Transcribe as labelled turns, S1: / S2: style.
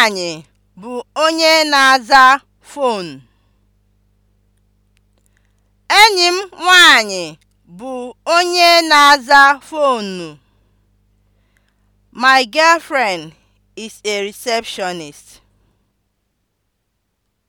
S1: Nwanyị bụ onye na-aza Enyi m nwanyị bụ onye na-aza fonu. My girlfriend is a receptionist.